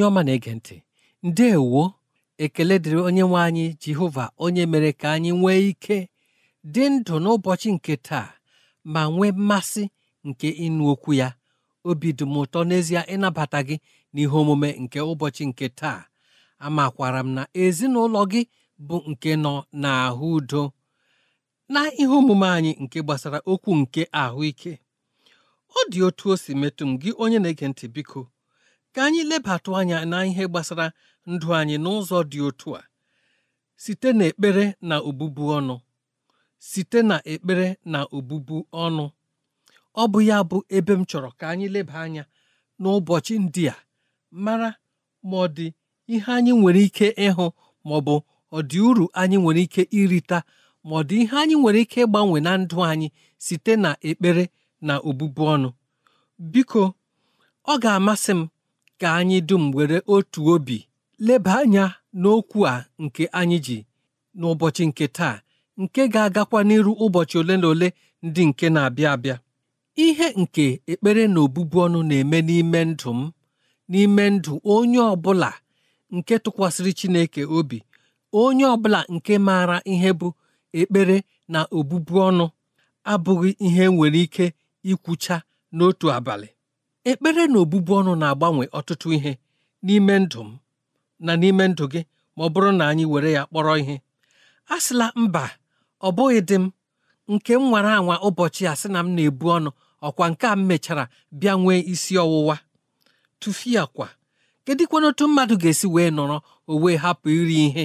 onye ọma na-ege ntị ndeewo ekele dịrị onye nwe anyị jehova onye mere ka anyị nwee ike dị ndụ n'ụbọchị nke taa ma nwee mmasị nke ịnụ okwu ya obi dị m ụtọ n'ezie ịnabata gị n'ihe omume nke ụbọchị nke taa amakwara m na ezinụlọ gị bụ nke nọ n'ahụ udo na ihe omume anyị nke gbasara okwu nke ahụike ọ dị otu o si metụ m gị onye na-ege ntị biko ka anyị lebatụ anya na ihe gbasara ndụ anyị n'ụzọ dị otu a site na ekpere na obubu ọnụ site na ekpere na obubu ọnụ ọ bụ ya bụ ebe m chọrọ ka anyị leba anya n'ụbọchị ndị a mara ma ọ dị ihe anyị nwere ike ịhụ ma ọ bụ ọ dị uru anyị nwere ike irita ma ọ dị ihe anyị nwere ike ịgbanwe na ndụ anyị site na ekpere na obubu ọnụ biko ọ ga-amasị m ka anyị dum were otu obi leba anya n'okwu a nke anyị ji n'ụbọchị nke taa nke ga-agakwa n'iru ụbọchị ole na ole ndị nke na-abịa abịa ihe nke ekpere na obụbu ọnụ na-eme n'ime ndụ m n'ime ndụ onye ọbụla nke tụkwasịrị Chineke obi onye ọbụla nke maara ihe bụ ekpere na obubu ọnụ abụghị ihe nwere ike ikwucha n'otu abalị ekpere na obubu ọnụ na-agbanwe ọtụtụ ihe n'ime ndụ m na n'ime ndụ gị ma ọ bụrụ na anyị were ya kpọrọ ihe a sịla mba ọ bụghị dị m nke m nwara anwa ụbọchị a sị na m na-ebu ọnụ ọkwa nke a m mechara bịa nwee isi ọwụwa tụfia kwa kedịkwana otu mmadụ ga-esi wee nọrọ o wee hapụ iri ihe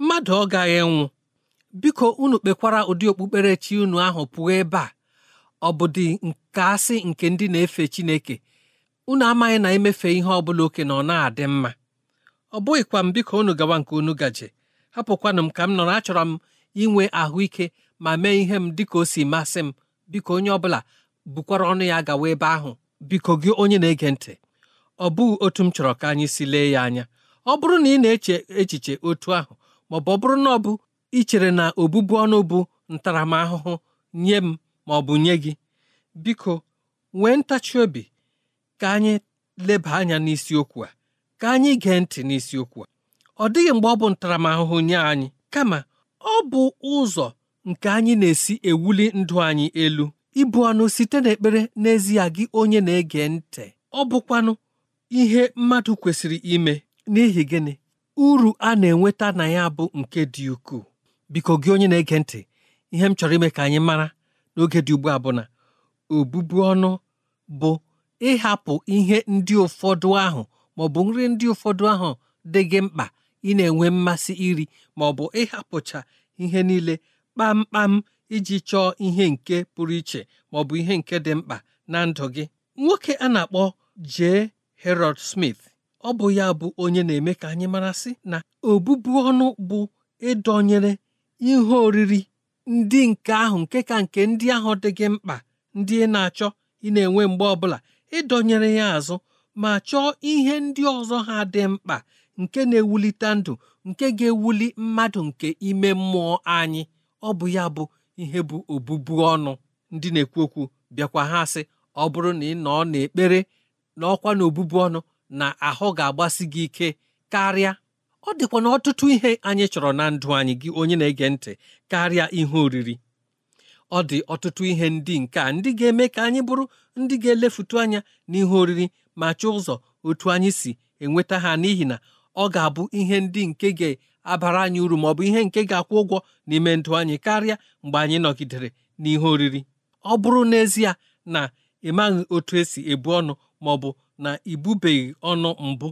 mmadụ ọ gaghị nwụ biko unu kpekwara ụdị okpukperechi unu ahụ pụọ ebe a ọbụdị nke asị nke ndị na-efe Chineke unu amaghị na emefe ihe ọbụla oke na ọ na-adị mma ọ bụghịkwa m biko unu gawa nke unu gaje hapụkwanụ m ka m nọrọ achọrọ m inwe ahụike ma mee ihe m dịka o si masị m biko onye ọbụla bukwara ọnụ ya gawa ebe ahụ biko gị onye na-ege ntị ọ bụghị otu m chọrọ ka anyị si lee ya anya ọ bụrụ na ị na-eche echiche otu ahụ maọbụ ọ bụrụ na ọ bụ ichere na obụbu ọnụ bụ ntaramahụhụ nye m ma ọ bụ nye gị biko nwee ntachi obi ka anyị leba anya n'isiokwu a ka anyị gee ntị n'isiokwu a ọ dịghị mgbe ọ bụ ntaramahụhụ nye anyị kama ọ bụ ụzọ nke anyị na-esi ewuli ndụ anyị elu ịbụ ọnụ site n'ekpere n'ezie gị onye na-ege ntị ọ bụkwanụ ihe mmadụ kwesịrị ime n'ihi gịnị uru a na-enweta na ya bụ nke dị ukwuu biko gị onye na-ege ntị ihe m chọrọ ime ka anyị mara n'oge dị ugbu a bụ na obubu ọnụ bụ ịhapụ ihe ndị ụfọdụ ahụ maọbụ nri ndị ụfọdụ ahụ dị gị mkpa ị na-enwe mmasị iri ma bụ ịhapụcha ihe niile kpamkpam iji chọọ ihe nke pụrụ iche ma bụ ihe nke dị mkpa na ndụ gị nwoke a na-akpọ J. Herod Smith ọ bụ ya bụ onye na-eme ka anyị marasị na obubu ọnụ bụ ịdọnyere ihe oriri ndị nke ahụ nke ka nke ndị ahụ dị gị mkpa ndị ị na-achọ ị na-enwe mgbe ọbụla ịdọnyere ya azụ ma chọọ ihe ndị ọzọ ha dị mkpa nke na-ewulite ndụ nke ga-ewuli mmadụ nke ime mmụọ anyị ọ bụ ya bụ ihe bụ obubu ọnụ ndị na-ekwu okwu bịakwa ha sị ọ bụrụ na ị nọ n'ekpere na ọkwa na obubu ọnụ na ahụ ga-agbasi gị ike karịa ọ dịkwa na ọtụtụ ihe anyị chọrọ na ndụ anyị gị onye na-ege ntị karịa ihe oriri ọ dị ọtụtụ ihe ndị nke a ndị ga-eme ka anyị bụrụ ndị ga-elefutu anya n'ihe oriri ma chọọ ụzọ otu anyị si enweta ha n'ihi na ọ ga-abụ ihe ndị nke ga-abara anyị uru ma ọ bụ ihe nke ga-akwụ ụgwọ n'ime ndụ anyị karịa mgbe anyị nọgidere n'ihe oriri ọ bụrụ n'ezie na ịmaghị otu esi ebu ọnụ ma ọ bụ na ibubeghị ọnụ mbụ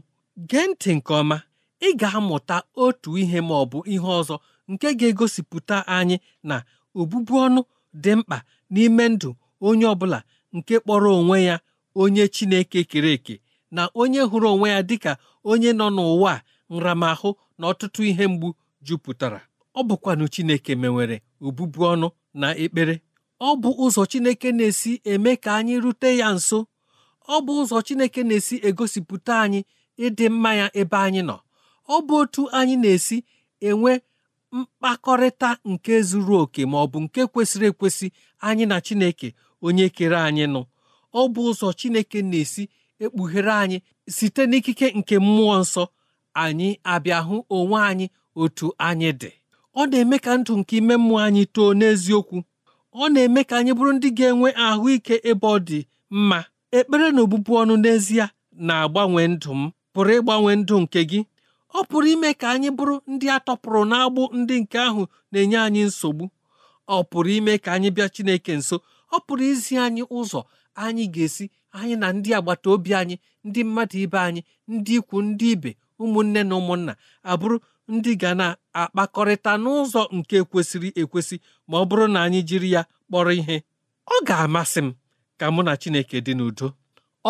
gee ntị nke ọma ị ga-amụta otu ihe ma ọ bụ ihe ọzọ nke ga-egosipụta anyị na obụbu ọnụ dị mkpa n'ime ndụ onye ọbụla nke kpọrọ onwe ya onye Chineke kere eke na onye hụrụ onwe ya dịka onye nọ n'ụwa nramahụ na ọtụtụ ihe mgbu jupụtara ọ bụkwanụ Chineke mewere obụbu ọnụ na ekpere ọ bụ ụzọ Chineke na-esi eme ka anyị rute ya nso ọ bụ ụzọ Chineke na-esi egosipụta anyị ịdị mma ya ebe anyị nọ ọ bụ otu anyị na-esi enwe mkpakọrịta nke zuru oke ma ọ bụ nke kwesịrị ekwesị anyị na Chineke onye kere anyị nụ ọ bụ ụzọ Chineke na-esi ekpughere anyị site n'ikike nke mmụọ nsọ anyị abịa hụ onwe anyị otu anyị dị ọ na-eme ka ndụ nke ime mmụọ anyị too n'eziokwu ọ na-eme ka anyị bụrụ ndị ga-enwe ahụike ebe ọ dị mma ekpere na obụbụ ọnụ n'ezie na-agbanwe ndụ m pụrụ ịgbanwe ndụ nke gị ọ pụrụ ime ka anyị bụrụ ndị a tọpụrụ n'agbụ ndị nke ahụ na-enye anyị nsogbu ọ pụrụ ime ka anyị bịa Chineke nso ọ pụrụ izi anyị ụzọ anyị ga-esi anyị na ndị agbata obi anyị ndị mmadụ ibe anyị ndị ikwu ndị ibe ụmụnne na ụmụnna abụrụ ndị ga na-akpakọrịta n'ụzọ nke kwesịrị ekwesị ma ọ bụrụ na anyị jiri ya kpọrọ ihe ọ ga-amasị m ka mụ na Chineke dị n'udo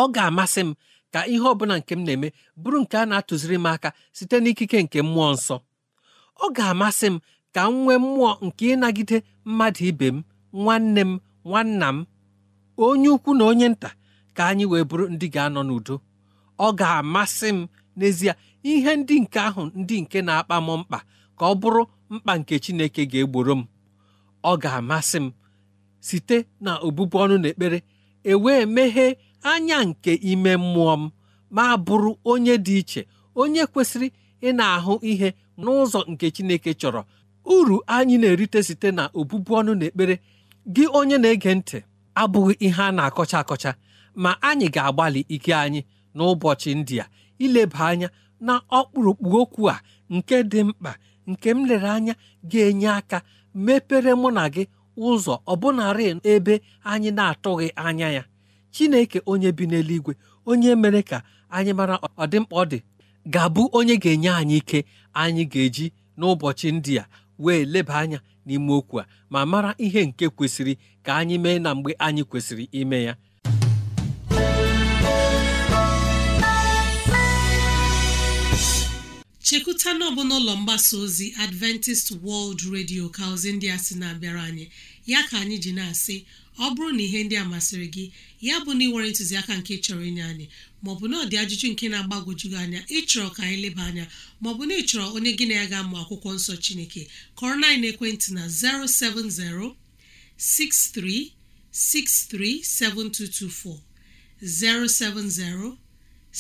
ọ ga-amasị m ka ihe ọbụla nke m na-eme bụrụ nke a na-atụziri m aka site n'ikike nke mmụọ nsọ ọ ga-amasị m ka m nwee mmụọ nke ịnagide mmadụ ibe m nwanne m nwanna m onye ukwu na onye nta ka anyị wee bụrụ ndị ga-anọ n'udo ọ ga-amasị m n'ezie ihe ndị nke ahụ ndị nke na-akpa m mkpa ka ọ bụrụ mkpa nke Chineke ga-egboro m ọ ga-amasị m site na obụbụ ọnụ na ekpere ewee meghee anya nke ime mmụọ m ma bụrụ onye dị iche onye kwesịrị ị na-ahụ ihe n'ụzọ nke Chineke chọrọ uru anyị na-erite site na obụbụ ọnụ na ekpere gị onye na-ege ntị abụghị ihe a na-akọcha akọcha ma anyị ga-agbalị ike anyị n'ụbọchị ndị a ileba anya na ọkpụrụkpụ okwu a nke dị mkpa nke m lere anya ga-enye aka mepere mụ na gị ụzọ ọbụnarị ebe anyị na-atụghị anya ya chineke onye bi n'eluigwe onye mere ka anyị mara ọdịmkpa ọ dị ga-abụ onye ga-enye anyị ike anyị ga-eji n'ụbọchị ndị a wee leba anya n'ime okwu a ma mara ihe nke kwesịrị ka anyị mee na mgbe anyị kwesịrị ime ya chekwuta na n'ụlọ mgbasa ozi adventist world radio ka ndị a sị na-abịara anyị ya ka anyị ji na-asị ọ bụrụ na ihe ndị a masịrị gị ya bụ na ị nwere ntụziaka nke chọrọ inye anyị maọbụ na ọdị ajụjụ nke na-agbagwoju gị anya ịchọrọ ka anyị leba anya maọbụ na ịchọrọ onye gị na ya ga-amụ akwụkwọ nsọ Chineke kọrọ na ekwentị na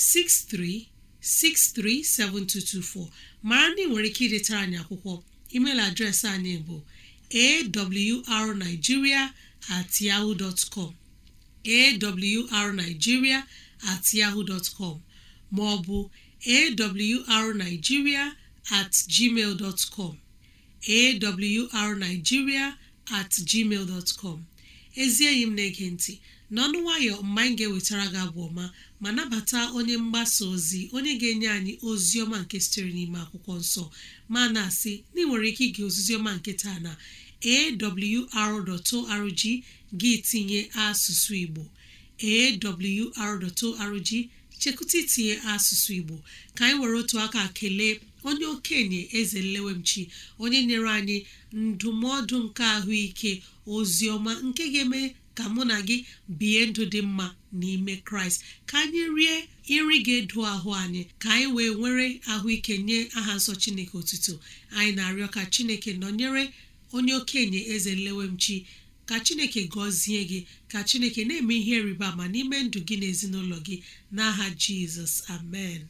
07063637224 07063637224 mara na ị nwere ike idetara anyị akwụkwọ email adreesị anyị bụ awrnigeria at com at yahoo com ma ọ bụ at gmail dot com at com ezi enyi m na-ege ntị n'ọnụ nwayọ mma anyị ga-ewetara gị abụ ọma ma nabata onye mgbasa ozi onye ga-enye anyị ozi ọma nke sitere n'ime akwụkwọ nsọ ma na-asị na ị nwere ike ige ozizi ọma nke taa na awr.org gị tinye asụsụ igbo awr.org chekụta itinye asụsụ igbo ka anyị were otu aka kelee onye okenye eze nlewemchi onye nyere anyị ndụmọdụ nke ahụike ozi ọma nke ga-eme ka mụ na gị bie ndụ dị mma n'ime kraịst ka anyị rie nri ga edo ahụ anyị ka anyị wee nwere ahụike nye aha nsọ chineke otuto anyị na-arịọ ka chineke nọnyere onye okenye eze nlewemchi ka chineke gọzie gị ka chineke na-eme ihe rịba ama n'ime ndụ gị n'ezinụlọ ezinụlọ gị n'aha jizọs amen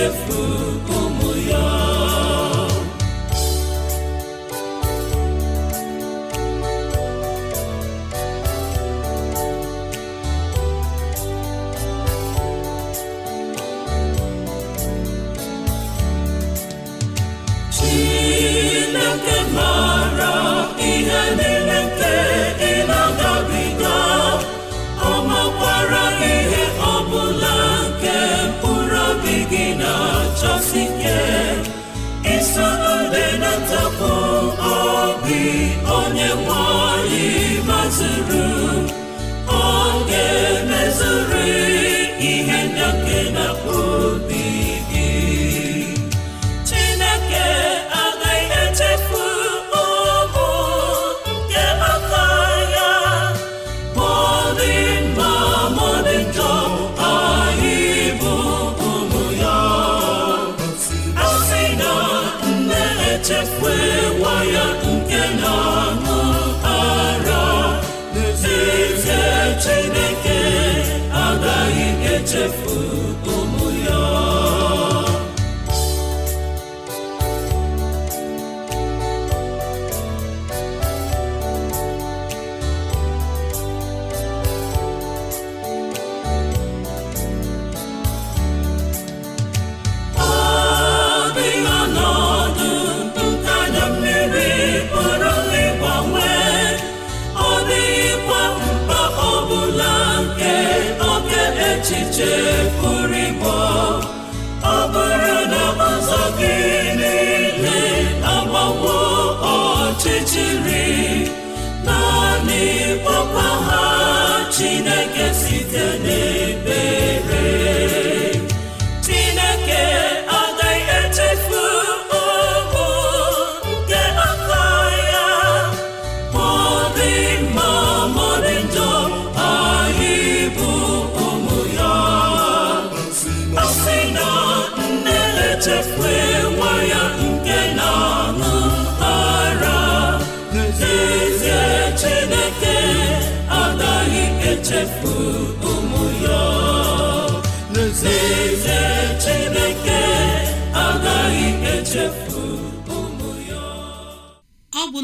chefu onye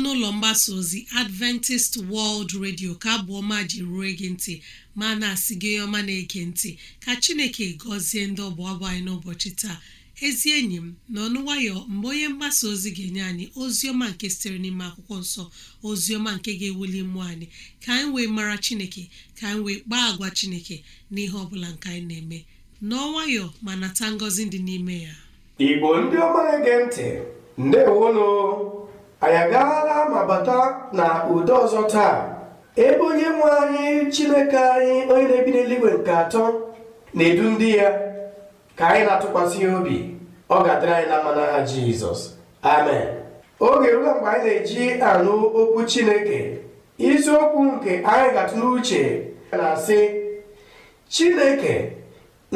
n'ọnụ ụlọ mgbasa ozi adventist world radio ka bụ ọma ji rue gị ntị ma na-asị gị ọma na-ege ntị ka chineke gọzie ndị ọbụ abụ anyị n'ụbọchị taa ezi enyi m na ọnụ nwayọ mgbe onye mgbasa ozi ga-enye anyị ozi ọma nke sitere n'ime akwụkwọ nsọ ozi ọma nke ga-ewuli mmụọ anyị ka anyị wee mara chineke ka anyị wee kpaa agwa chineke n'ihe ọbụla nke anyị na-eme n'ọnwayọ ma nata ngọzi dị n'ime ya igbo ndị ọma na-ege ntị ndewonu anyị agaala ma bata na udo ọzọ taa ebe onye nwe anyị chineke anyị onye na-ebi n'eluigwe nke atọ na-edu ndị ya ka anyị na-atụkwasị obi ọ ga-adịrị anyị na mma n'aha jizọs amen oge ruo mgbe anyị na-eji anụ okwu chineke isiokwu nke anyị ga-atụ n'uche na-asị chineke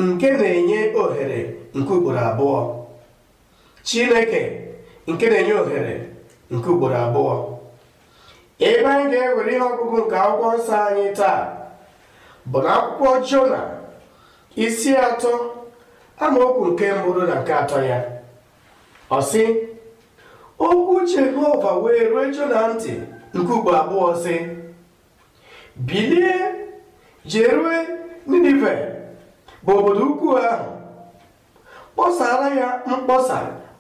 nke na-enye ohere nke ugboro abụọ chineke nke na-enye ohere nke ugboro abụọ ebe anyị ga-ewere ihe ọgụgụ nke akwụkwọ nsọ anyị taa bụ na akwụkwọ jona isi atọ amaokwu nke mbụrụ na nke atọ ya ọ sị okwu jehova wee ruo jona ntị nke ugbo abụọ sị bilie jerue ninive bụ obodo ukwu ahụ kpọsara ya mkpọsa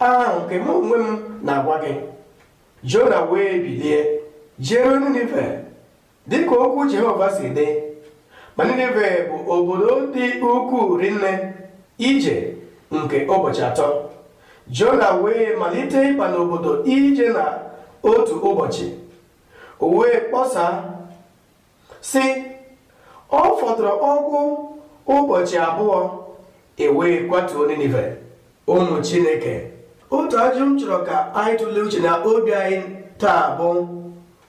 ahụ nke m onwe m na-agwa gị jona wee bilie jere ninive dịka okwu jehova si dị ma ninive bụ obodo dị ukwuu rinne ije nke ụbọchị atọ jona wee malite ịba n'obodo ije na otu ụbọchị o wee kpọsa si ọ fọdụrụ ọgwụ ụbọchị abụọ e wee kwatuo ninive ụmụ chineke otu ajụ m chọrọ ka anyị tụlee uche na obi anyị taa bụ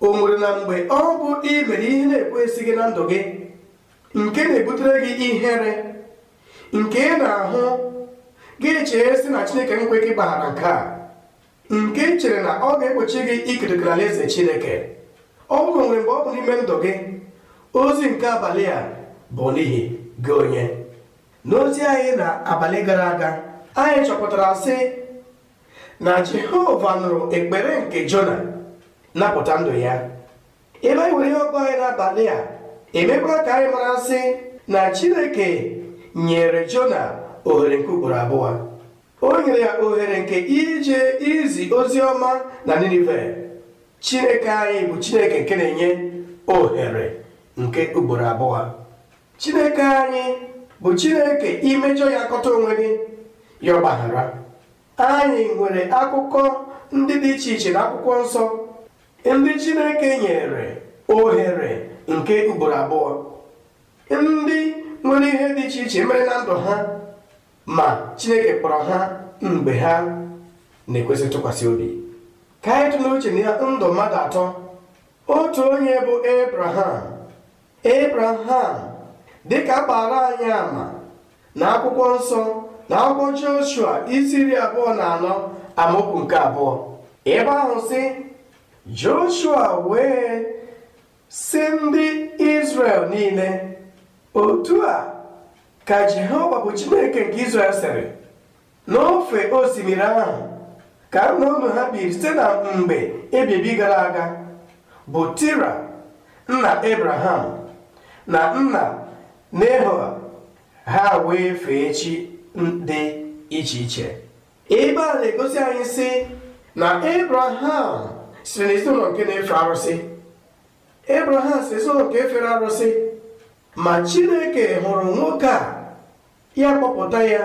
o nwere na mgbe ọ bụ ị mere ihe na-ekwesịghị na ndụ gị nke na-ebutere gị ihere nke ị na-ahụ gị chee sị na chineke nkwe gị gbaghara nke a nke chere na ọ ga ekpochi gị ikerikere alaeze chineke ọ bụrụ nwere mgbe ọ bụ n'ime ndụ gị ozi nke abalị a bụ n'ihi gị onye n'ozi anyị na abalị gara aga anyị chọpụtara sị na jehova nụrụ ekpere nke jona napụta ndụ ya ebe anyị nwere ihe ọgụ anyị n'abalị a emekwa ka anyị mara sị na chineke nyere jona ohere nke ugboro abụọ o nyere ya ohere nke ije izi ozi ọma na ninive chineke anyị bụ chineke nke na-enye ohere nke ugboro abụọ chineke anyị bụ chineke imejọ ya kọta onwe gị ya ọgbaghara anyị nwere akụkọ ndị dị iche iche na akwụkwọ nsọ ndị Chineke nyere ohere nke ugboro abụọ ndị nwere ihe dị iche iche mere na ndụ ha ma Chineke kpọrọ ha mgbe ha na-ekwesị ntụkwasị obi ka anyị tụlee uche na ndụ mmadụ atọ otu onye bụ Abraham Abraham dịka kpara anyị ama na akwụkwọ nsọ na akwụkwọ joshua isi abụọ na anọ amaokwu nke abụọ ebe ahụ si joshua wee si ndị israel niile otu a ka jehova bụ chineke nke israel sịrị n'ofe osimiri ahụ ka nna unu ha biri site na mgbe ebibi gara aga bụ tira nna abraham na nna nehoa ha wee fee chi dị iche iche ebe a na-egosi anyị si na Abraham siri n'ezinụlọ nke na-efe arụsị Abraham si ezinụlọ nke fere arụsị ma Chineke hụrụ nwoke a ya kpọpụta ya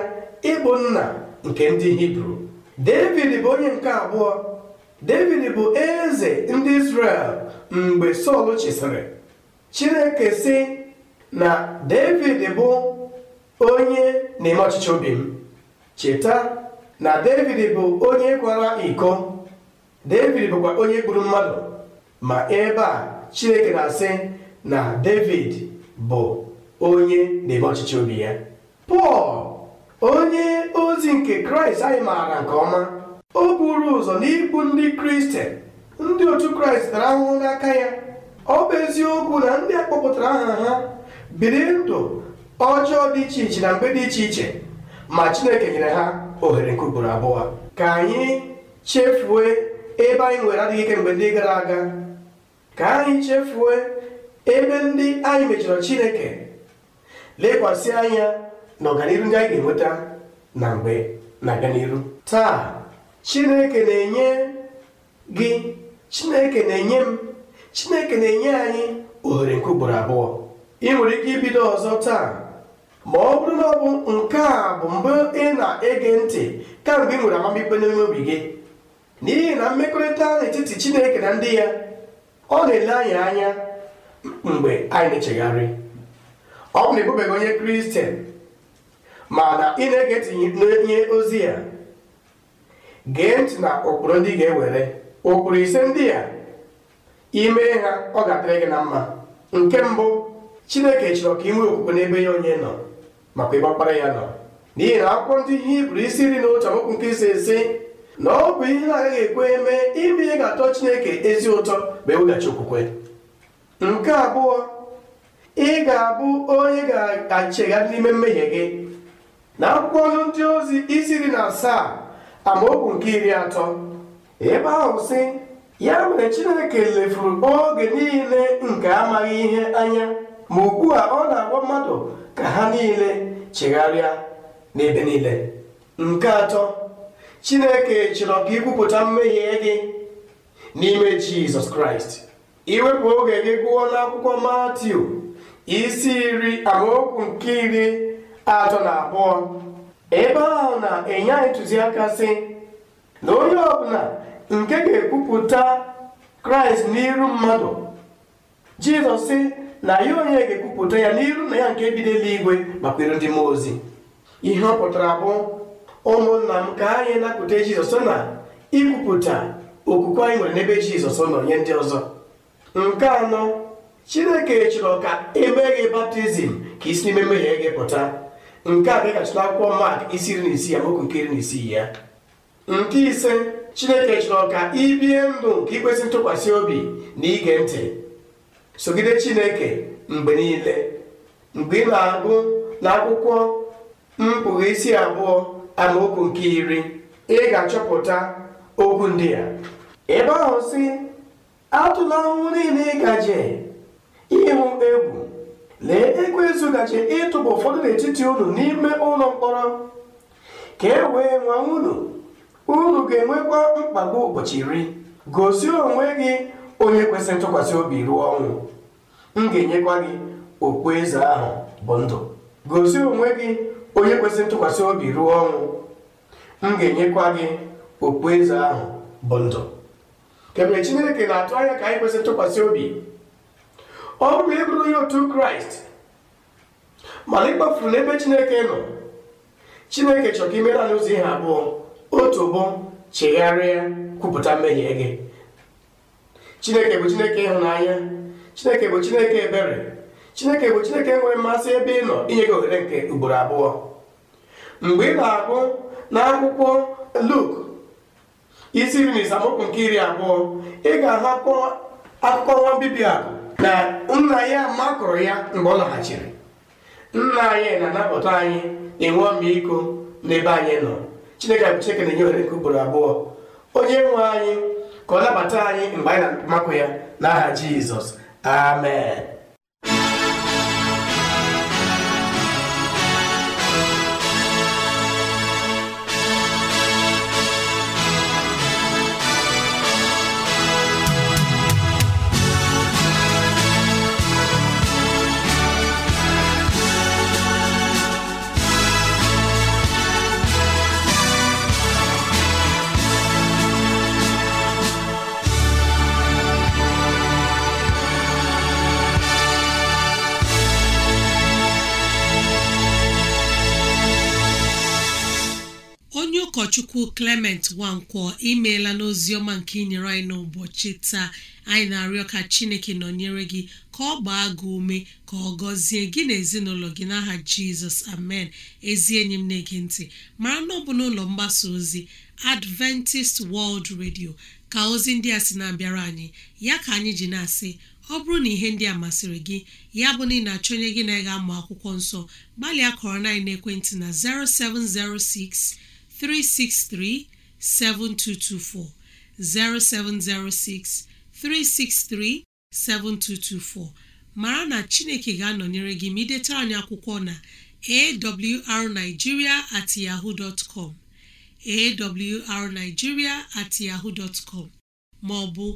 ịbụ nna nke ndị Hibru David bụ onye nke abụọ David bụ eze ndị Israel mgbe Sọl chịsịrị Chineke si na David bụ onye n'ime ọchịchị obi m cheta na david bụ onye kwara iko david bụkwa onye gburu mmadụ ma ebe a chineke na-asị na david bụ onye na-eme ọchịchị obi ya pọl onye ozi nke kraịst anyị maara nke ọma o buru ụzọ n'ikpu ndị kristian ndị otu kraịst dara ahụhụ n'aka ya ọ bụ eziokwu na ndị akpọpụtara aha ha biri ndụ ọjọọ dị iche iche na mgbe dị iche iche ma chineke nyere ha ohere nke ugboro abụọ ka anyị chefuo ebe anyị nwere adịghị ike mgbe ndị gara aga ka anyị chefuo ebe ndị anyị mechọrọ chineke lekwasị anya na ọganihu ndị anyị ga-enweta na mgbe na n'iru taa chineke na-enye gị chineke na-enye m chineke na-enye anyị ohere nke ugboro abụọ ị nwere ike ibido ọzọ taa ma ọ bụrụ na ọ bụ nke a bụ mbụ ị na-ege ntị kamgbe ị nwere amamikpe n'ime obi gị n'ihi na mmekọrịta n'etiti chineke na ndị ya ọ na-ele anyị anya mgbe anyị na-echegharị ọ bụ na ịbụbeghị onye kristian na ị na-ege ntị ozi ya gee ntị na ụkpụrụ ndị ga-ewere ụkpụrụ ise ndị ya ime ha ọ ga-adịrị gị na mma nke mbụ chineke chọrọ ka ị nwee okwukwe n'ebe ya onye nọ makwa ịgbakpara ya nọ n'ihi e e e na akwụkwọ ndị ihe iburu isi iri na otu amaokwu nke si esi. na ọ bụ ihe agaghị ekwe eme ime ihe ga-atọ chineke ezi ụtọ ma eweghachi okwukwe nke abụọ ị ga-abụ onye ga-achịgharị n'ime mmehie gị na akwụkwọ ndị ozi isi iri na asaa amaokwu nke iri atọ ebe ahụ si. ya mere chineke lefuru oge niile nke amaghị ihe anya ma ugbu a ọ na-agwa mmadụ ka ha niile chegharịa n'ebe niile nke atọ chineke chọrọ ka ikwupụta mmehie gị n'ime jizọs kraịst iwepụ oge gị gụọ n'akwụkwọ matiu isi iri amaokwu nke iri atọ na abụọ ebe ahụ na-enye anyị ntụziaka sị na onye ọbụla nke ga-ekwupụta kraịst n'iru mmadụ jizọs sị na ya onye ga-ekwupụta ya n'iru na ya nke bido eluigwe makwere ndị mmụọ ozi ihe ọ pụtara bụ ụmụnna m ka anyị napụta jizọs na ikwupụta okwukwe anyị nwere n'ebe jizọs nọ nye ndị ọzọ nke anọ chineke chọrọ ka gị baptizim ka isi n'ime mmehie gị pụta nke a dịgachita akwụkwọ mak isi iri na isii amaokwu nke iri na isii ya nke ise chineke chọrọ ka ibie ndụ nke ikwesị ntụkwasị obi na ige ntị sogide chineke mgbe niile mgbe ị na-agụ akwụkwọ mpụga isi abụọ amaokwu nke iri ị ga-achọpụta okwu ndị ya ebe ahụ si atụla ahụhụ niile ị ịhụ egwu lee ekwensu gaje ịtụba ụfọdụ n'etiti unu n'ime ụlọ mkpọrọ ka e wee nwa unu unu ga-enwekwa mkpagbu ụbọchị iri gosi onwe gị onye kwesịrị ntụkwasị obi ruo ọnwụ m ga-enyekwa gị ahụ bụ ndụ gosi onwe gị onye kwesịrị ntụkwasị obi ruo ọnwụ m ga-enyekwa gị okpueze ahụ bụ ndụ kemgbe chineke na-atụ anya ka anyị kwesịrị ntụkwasị obi ọ bụrụ na ị onye otu kraịst mana ịkpafuru n'ebe chineke nọ chineke chọrọ ka imere ihe abụọ otu bụ chegharịa kwupụta mmehie gị chineke bụ chineke ịhụnanya chineke bụ chineke ebere chineke bụ chineke nwere mmasị ebe ị nọ inye gị ohere nke ugboro abụọ mgbe ị na-agụ na akwụkwọ luk isi iri na isamokwu nke iri abụọ ị ga-ahapụ akụkọ nwa mbibi akụ na nna ya makụrụ ya mgbe ọ laghachiri nna anyị na-anapụta anyị na-enwe ọmịiko n'ebe anyị nọ chineke bụ chineke na-enye ohere nke ugboro abụọ onye nwe anyị ka ọ nabata anyị mgbe anyị na-akpọmakụ ya n'aha Jizọs amen chukwu clement nwankwọ imeela n'ozi ọma nke inyere anyị n'ụbọchị taa anyị na-arịọ ka chineke nọnyere gị ka ọ gbaa gị ume ka ọ gọzie gị na ezinụlọ gị n'aha jizọs amen ezi enyi m na-ege ntị mara na ọ bụ n'ụlọ mgbasa ozi adventist world radio ka ozi ndị a sị na-abịara anyị ya ka anyị ji na-asị ọ bụrụ na ihe ndị a masịrị gị ya bụ na ị na-achọ onye gị na-ega amụ akwụkwọ nsọ gbalịa kọrọ 9 ekwentị na 0706 363 7224 0706 363 7224 mara na Chineke ga-anọnyere gị ma anyị akwụkwọ na awrnigeria at yahoo dot com awrnigeria yahoo dot com ma ọ bụ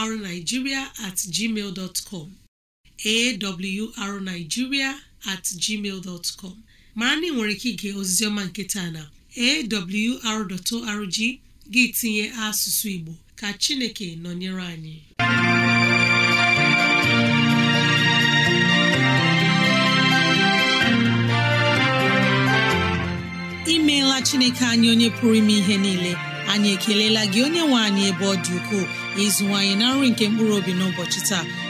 awrnigeria at gmail dot com awrnigeria gmail dot com mara na ị nwere ike ige oziziọma ọma nke taa na awr.org gị tinye asụsụ Igbo ka Chineke nọnyere anyị imeela Chineke anyị onye pụrụ ime ihe niile anyị ekelela gị onye nwe anyị ebe ọ dị ukwuu ịzụwanyị na nri nke mkpụrụ obi n'ụbọchị taa